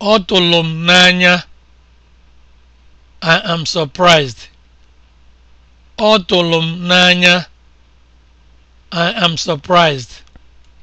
Ọ tụrụ m n'anya. I am surprised. m n'anya. I am surprised.